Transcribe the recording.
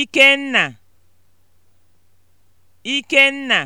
Ikenna Ikenna